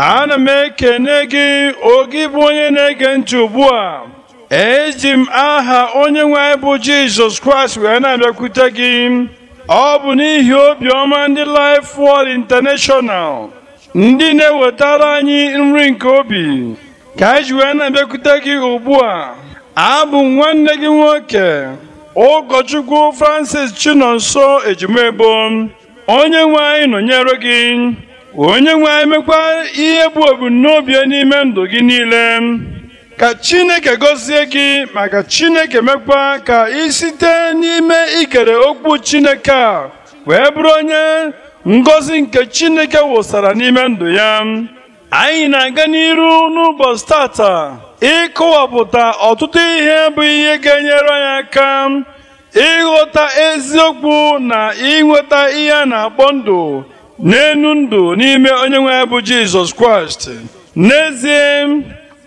ana m ekene gị oge bụ onye na-ege ntị ugbu a eji m aha onye nwe anyị bụ jizọs kraịst wee na-abịakwute gị ọ bụ n'ihi obiọma ndị Life Word International ndị na-ewetara anyị nri nke obi ka anyị ji wee na-abịakwute gị ugbu a abụ nwanne gị nwoke ụkọchukwu Francis Chinonso Ejimebo onye nwe anyị nọnyere gị onye nwe anyị ihe bụ ebumnobi n'ime ndụ gị niile ka chineke gọzie gị maka chineke mekwa ka ị site n'ime ikere okwu chineke a wee bụrụ onye ngọzi nke chineke wụsara n'ime ndụ ya anyị na-aga n'iru n'ụbọchị tata ịkọwapụta ọtụtụ ihe bụ ihe ga-enyere anyị aka ịghọta eziokwu na ịnweta ihe a na-akpọ ndụ n'enu ndụ n'ime onye nwe bụ jizọs kraịst n'ezie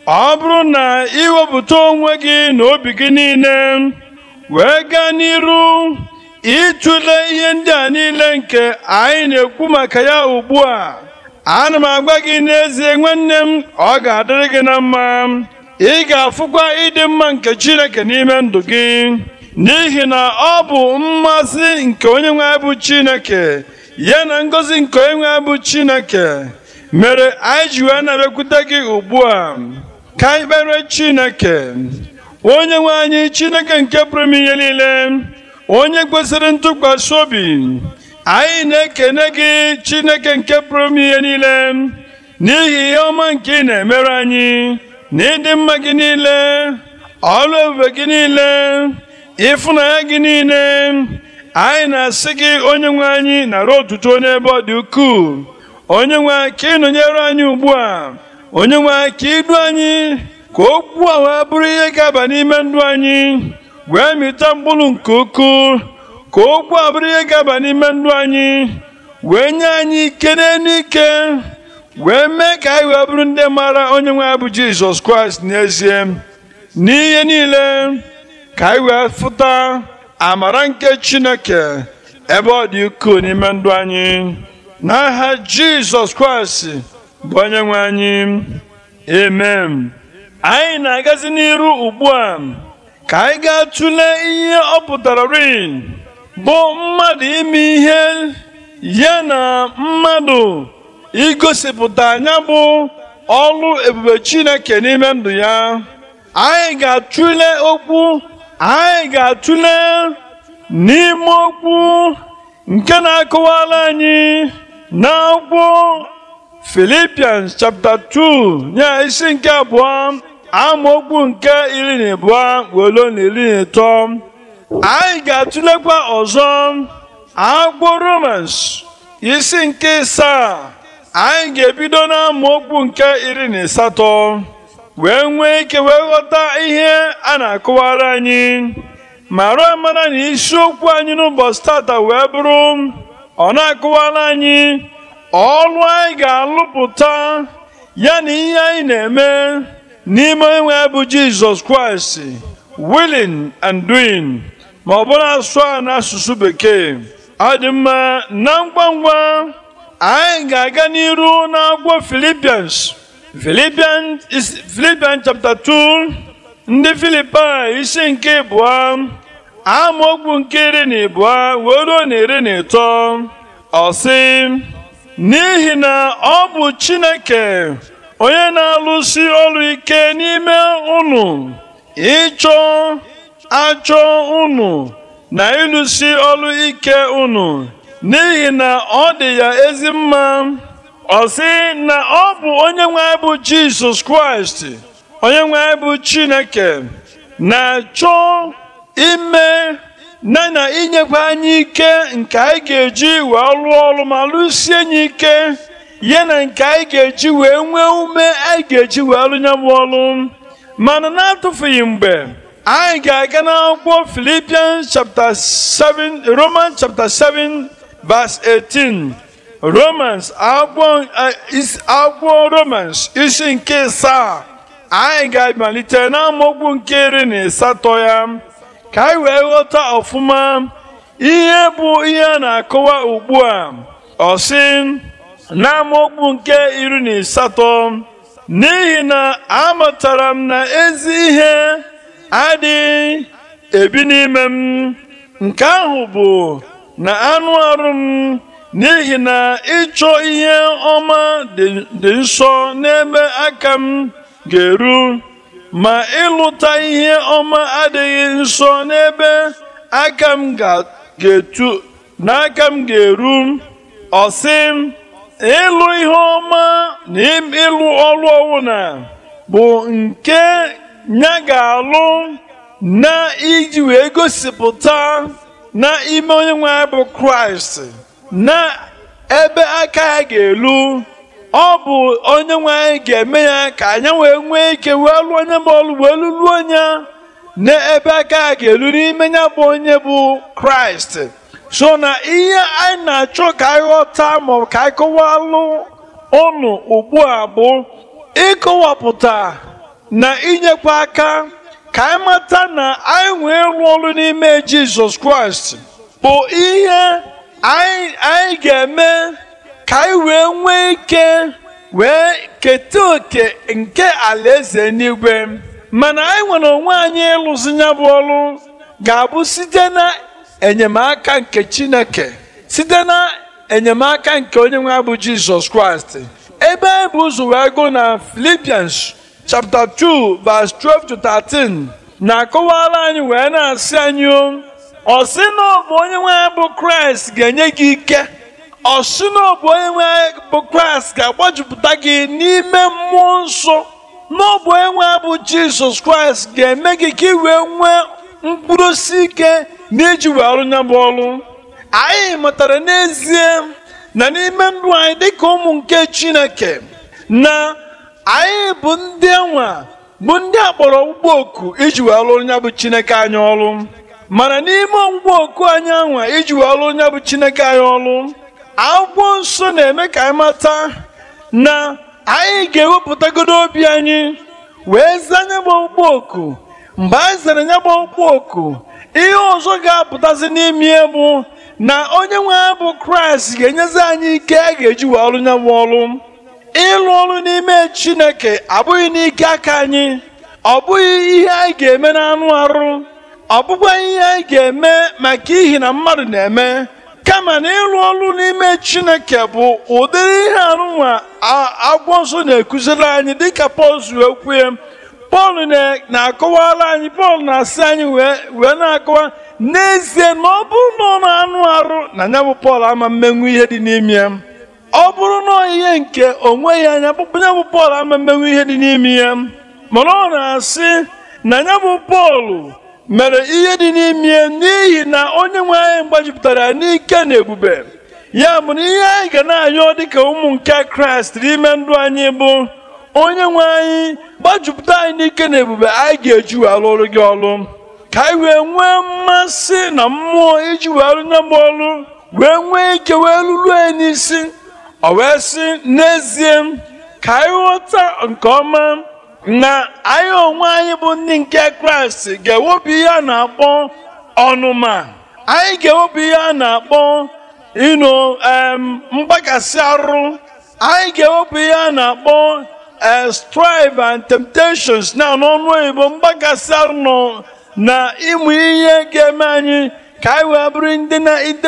ọ bụrụ na iwepụta onwe gị na obi gị niile wee gaa n'iru ịtụle ihe ndị a niile nke anyị na-ekwu maka ya ugbu a ana m agwa gị n'ezie nwanne m ọ ga-adịrị gị na mma ị ga-afụkwa ịdị mma nke chineke n'ime ndụ gị n'ihi na ọ bụ mmasị nke onye nwe bụ chineke ya na ngọzi nke onye nwe bụ Chineke mere anyị ji wee na-abịakwute gị ugbu a ka anyị kpere Chineke onye nwe anyị Chineke nke pụrụ ihe niile onye kwesịrị ntụkwasị obi anyị na-ekene gị Chineke nke pụrụ ihe niile n'ihi ihe ọma nke ị na-emere anyị na ịdị mma gị niile ọrụ ebube gị niile ịfụnanya gị niile anyị na-asị gị onye nwe anyị arụ otuto n'ebe ọ dị ukwuu onye nwe ka ịnọnyere anyị ugbu a onye nwe ka idu anyị ka okwu ahụ bụrụ ihe ga-aba n'ime ndụ anyị wee mịta mkpụrụ nke ukwuu ka okwu a bụrụ ihe ga-aba n'ime ndụ anyị wee nye anyị ike n'elu ike wee mee ka anyị wee bụrụ ndị maara onye nwe bụ Jizọs Kraịst n'ezie n'ihe niile ka anyị wee fụta amara nke chineke ebe ọ dị ukwuu n'ime ndụ anyị n'aha jizọs kraịst bụ onye nwe anyị amen anyị na-agazi n'iru ugbu a ka anyị ga-atụle ihe ọ pụtara rin bụ mmadụ ime ihe ya na mmadụ igosipụta anya bụ ọlụ ebube chineke n'ime ndụ ya anyị ga-atụle okwu anyị ga-atụle n'ime okwu nke na-akọwala anyị n'akwụkwọ Philippians chapter 2 ya isi nke abụọ amaokwu nke iri na abụọ welo na iri na ịtọ anyị ga-atụlekwa ọzọ akwụkwọ Romans isi nke asaa anyị ga-ebido na amaokwu nke iri na asatọ wee nwee ike wee ghọta ihe a na-akụwara anyị ma ruo amara na isiokwu anyị n'ụbọchị tata wee bụrụ ọ na-akụwara anyị ọrụ anyị ga-alụpụta ya na ihe anyị na-eme n'ime onwe bụ jizọs kraịst willing and doing ma ọ bụrụ asụ a n'asụsụ bekee adị mma na ngwa ngwa anyị ga-aga n'iru n'akwụkwọ Philippians Philippians, Philippians chapter 2 ndị Filipaị isi nke abụọ amaokwu nke iri na abụọ wee ruo na iri na ịtọ ọ sị n'ihi na ọ bụ Chineke onye na-alụsi ọrụ ike n'ime unu ịchọ achọ unu na ịlụsi ọrụ ike unu n'ihi na ọ dị ya ezi mma ọ sị na ọ bụ onye nwe bụ jizọs kraịst onye nwe bụ chineke na-achọ ime na na inyekwa anyị ike nke anyị ga-eji wee lụọ ọrụ ma lụsie anyị ike ya na nke anyị ga-eji wee nwee ume anyị ga-eji wee lụ bụ ọrụ mana na-atụfughị mgbe anyị ga-aga n'akwụkwọ Filipian chapter 7 Roman chapter 7 verse 18 romans agwọ eh, romans isi nke saa anyị ga-amalite n'amaokwu nke iri na isatọ ya ka anyị wee ghọta ọfụma ihe bụ ihe a na-akọwa ugbu a ọsị sị nke iri na isatọ n'ihi na amatara m na ezi ihe adịghị ebi n'ime m nke ahụ bụ na anụ arụ m n'ihi na ịchọ ihe ọma dị nsọ n'ebe aka m ga-eru ma ịlụta ihe ọma adịghị nsọ n'ebe aka m ga-etu n'aka m ga-eru ọsị ịlụ ihe ọma na ịlụ ọrụ ọwụna bụ nke ya ga-alụ na iji wee gosipụta na ime onye nwe bụ kraịst na ebe aka ya ga-elu ọ bụ onye nwe anyị ga-eme ya ka anyị wee nwee ike wee lụọ onye bụ ọlụ wee lụlụọ onye na ebe aka ya ga-elu n'ime ya bụ onye bụ kraịst so na ihe anyị na-achọ ka anyị ghọta maọbụ ka anyị ọnụ ugbu a bụ ịkọwapụta na inyekwa aka ka anyị na anyị nwee ịrụ ọrụ n'ime jizọs kraịst bụ ihe anyị ga-eme ka anyị wee nwee ike wee keta oke nke alaeze n'igwe mana anyị nwere onwe anyị ịlụzi ya bụ ọrụ ga-abụ site na enyemaka nke chineke site na enyemaka nke onye nwe abụ jizọs kraịst ebe anyị bụ ụzọ wee gụ na filipiens chapter 2 vs 12 to 13 na-akọwara anyị wee na-asị anyị ọ bụ onye nwe bụ kraịst ga-enye gị ike ọ bụ onye nwe bụ kraịst ga-agbajupụta gị n'ime mmụọ nsọ n'ọbụ ọ bụ onye nwe bụ jizọs kraịst ga-eme gị ka ị wee nwee mkpụrụ ike na iji wee ya bụ ọrụ anyị mụtara n'ezie na n'ime ndụ anyị dịka ụmụ nke chineke na anyị bụ ndị enwe bụ ndị akpọrọ ụgbọ oku iji wee lụrụ ya bụ chineke anyị ọrụ mana n'ime ngwa oku anyị anwa iji ọrụ onye bụ chineke anyị ọrụ akwụkwọ nsọ na-eme ka anyị mata na anyị ga-ewepụtagodo obi anyị wee zaa anya bụ oku mgbe anyị zere anya bụ oku ihe ọzọ ga-apụtazi n'ime bụ na onye nwe anyị bụ kraịst ga-enyezi anyị ike a ga-eji wee ọlụ nya bụ ọrụ ịlụ ọrụ n'ime chineke abụghị n'ike aka anyị ọ bụghị ihe anyị ga-eme n'anụ arụ ọ ihe anyị ga-eme maka ihi na mmadụ na-eme kama na ịrụ ọrụ n'ime chineke bụ ụdịrị ihe arụnwa agwọ nsọ na-ekụziri anyị dịka pọl zuru okwu pọl na-akọwara anyị pọl na-asị anyị wee na-akọwa n'ezie na ọ bụrụ na ọ na-anụ arụ na ya bụ pọl ama mmenwu ihe dị n'ime ya ọ bụrụ na ihe nke onwe ya anya ya bụ pọl ama mmenwu ihe dị n'ime ya mana ọ na-asị na ya bụ pọl mere ihe dị n'ime n'ihi na onye nwe anyị gbajupụtara n'ike na ebube ya bụ na ihe anyị ga na-anyọ dịka ụmụ nke kraịst n'ime ndụ anyị bụ onye nwe anyị gbajupụta anyị n'ike na ebube anyị ga-eji wee alụrụ gị ọrụ ka anyị wee nwee mmasị na mmụọ iji wee alụ nya ọrụ wee nwee ike wee lụrụ anyị n'isi ọ wee sị n'ezie ka anyị ghọta nke ọma na anyị onwe anyị bụ ndị nke kraịst ga-ewepụ ihe a na-akpọ ọnụma anyị ga-ewepụ ihe a na-akpọ ịnụ mgbakasị arụ anyị ga-ewepụ ihe a na-akpọ eh, strive and temptations na n'ọnụ oyibo mgbakasị arụ na ịmụ ihe ga-eme anyị ka anyị wee bụrụ ndị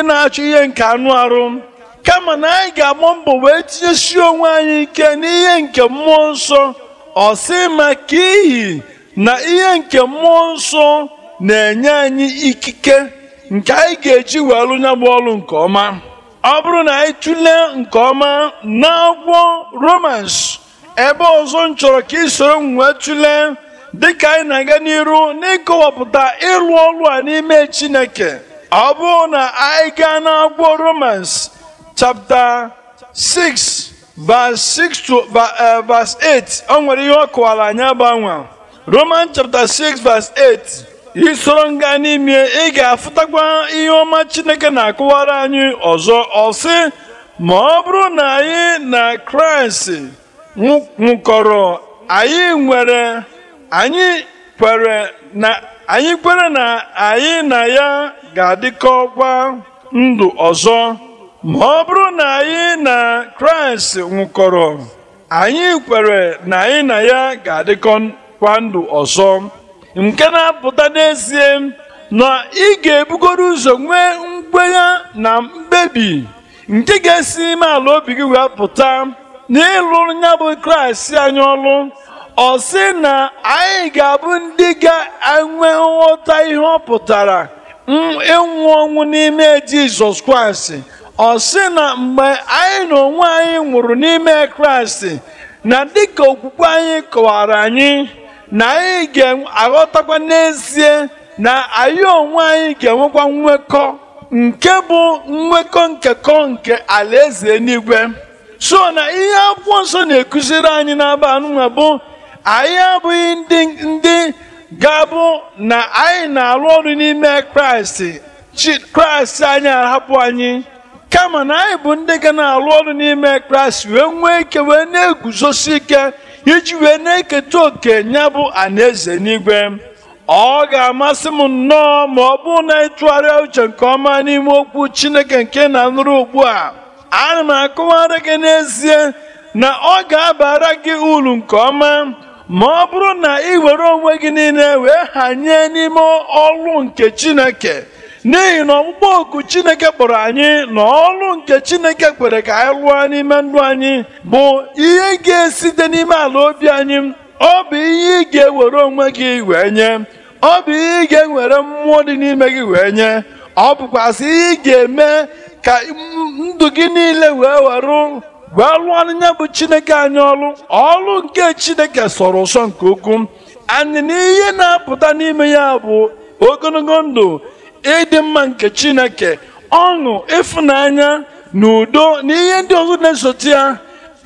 na-achọ ihe nke anụ arụ kama na anyị ga-agba mbọ wee tinyesi onwe anyị ike n'ihe nke mmụọ nsọ ọ sị maka iyi na ihe nke mmụọ nsọ na-enye anyị ikike nke anyị ga-eji wee nya bụ ọlụ nke ọma ọ bụrụ na anyị tụlee nke ọma na agwọ romans ebe ọzọ m chọrọ ka isoro m wee tụlee dịka anyị na-aga n'iru n'ịkọwapụta ịrụ ọrụ a n'ime chineke ọ bụrụ na anyị gaa agwọ romans chapta 6 verse 6 to uh, verse 8 o nwere ihe ọ kọwara anyị roman chapter 6 verse 8 isoro nga n'ime ị ga-afụtakwa ihe ọma chineke na-akụwara anyị ọzọ ọsị ma ọ bụrụ na anyị na kraịst nwụkọrọ anyị nwere anyị kwere na anyị kwere na anyị na ya ga-adịkọkwa ndụ ọzọ ma ọ bụrụ na anyị na kraịst nwụkọrọ anyị kwere na anyị na ya ga-adịkọkwa ndụ ọzọ nke na-apụta n'ezie na ị ga-ebugoro ụzọ nwee mkpegha na mkpebi nke ga-esi ime ala obi gị wee pụta n'ịlụ ya bụ kraịst anyị ọlụ ọ sị na anyị ga-abụ ndị ga-enwe nghọta ihe ọ pụtara ịnwụ ọnwụ n'ime jizọs kraịst ọ sị na mgbe anyị na onwe anyị nwụrụ n'ime kraịst na dịka okwukwe anyị kọwara anyị na anyị ga-aghọtakwa n'ezie na anyị onwe anyị ga-enwekwa nwekọ nke bụ nwekọ nkekọ nke alaeze eluigwe so na ihe akwụkwọ nsọ na-ekụziri anyị n'aba anụnwa bụ anyị abụghị ndị ndị ga-abụ na anyị na-arụ ọrụ n'ime kraịst kraịst anyị ahapụ anyị kama na anyị bụ ndị ga na-alụ ọrụ n'ime kraịst wee nwee ike wee na-eguzosi ike iji wee na-eketa oke ya bụ anaeze n'igwe ọ ga-amasị m nnọọ ma ọ bụrụ na ịtụgharịa uche nke ọma n'ime okwu chineke nke na nụrụ ugbu a ana m akụwara gị n'ezie na ọ ga-abara gị uru nke ọma ma ọ bụrụ na ị were onwe gị niile wee hanye n'ime ọrụ nke chineke n'ihi na ọkpụkpọ oku chineke kpọrọ anyị na ọrụ nke chineke kwere ka anyị lụọ n'ime ndụ anyị bụ ihe ga-esite n'ime ala obi anyị ọ bụ ihe ị ga-ewere onwe gị wee nye ọ bụ ihe ị ga-ewere mmụọ dị n'ime gị wee nye ọ bụkwasị ihe ị ga-eme ka ndụ gị niile wee were wee lụọ n'anya bụ chineke anyị ọrụ ọrụ nke chineke sọrọ ụsọ nke ukwuu anyị na ihe na-apụta n'ime ya bụ ogologo ndụ ịdị mma nke chineke ọṅụ ịfụnanya na udo na ihe ndị ọzọ na-esote ya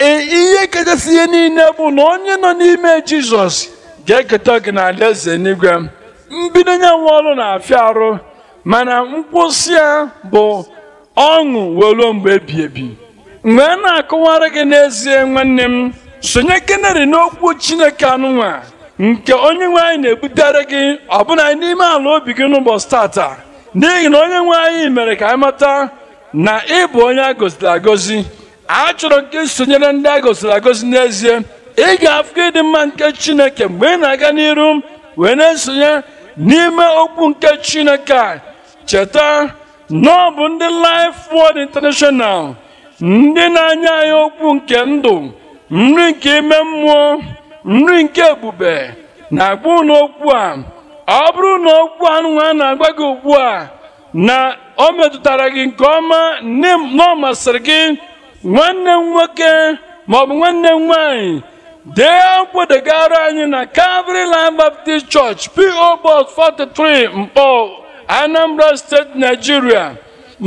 e, ihe kachasị ihe niile bụ na onye nọ n'ime jizọs ga-eketa gị na alaeze n'igwe mbido ya nwa ọrụ na-afịa arụ mana nkwụsị ya bụ ọṅụ wee ruo mgbe ebi ebi mgbe a na-akọwara gị n'ezie nwanne m sonye kenari n'okwu chineke anụnwa nke onye nwe anyị na-ebutere gị ọbụna n'ime ala obi gị n'ụbọchị tata n'ihi na onye nwe anyị mere ka anyị mata na ị bụ onye a goziri agozi achọrọ nke sonyere ndị a goziri agozi n'ezie ị ga ịdị mma nke chineke mgbe ị na-aga n'iru wee na-esonye n'ime okwu nke chineke a cheta na ọ bụ ndị Life Word International ndị na-anya anyị okwu nke ndụ nri nke ime mmụọ nri nke ebube na-agba ụlọ okwu a ọ bụrụ na okwu anụ na-agwa gị ugbu a na o metụtara gị nke ọma na ọ masịrị gị nwanne m nwoke maọbụ nwanne m nwaanyị dee akwụkwọ degara anyị na Calvary Land Baptist Church P.O. Box 43 Mkpọ Anambra steeti Nigeria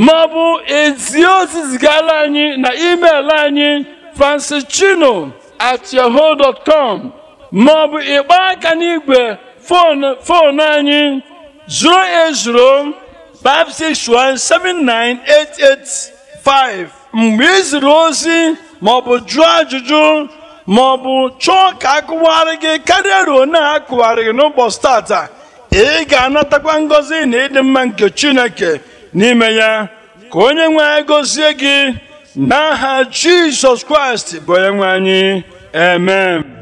maọbụ ezi ozi zigara anyị na email anyị francischino at maọbụ ịgba aka n'igwe foonu anyị 080 561-79885 mgbe ị ziri ozi maọbụ jụọ ajụjụ maọbụ chọọ ka akụwarị gị karịa ruo na akụwarị gị n'ụbọchị tata ị ga-anatakwa ngọzi na ịdị mma nke chineke n'ime ya ka onye nwe anyị gọzie gị n'aha jizọs kraịst bụ onye nwe anyị